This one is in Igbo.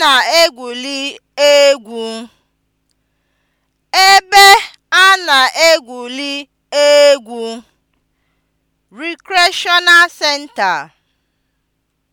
na egwu ebe a na egwuli egwu (recreational center)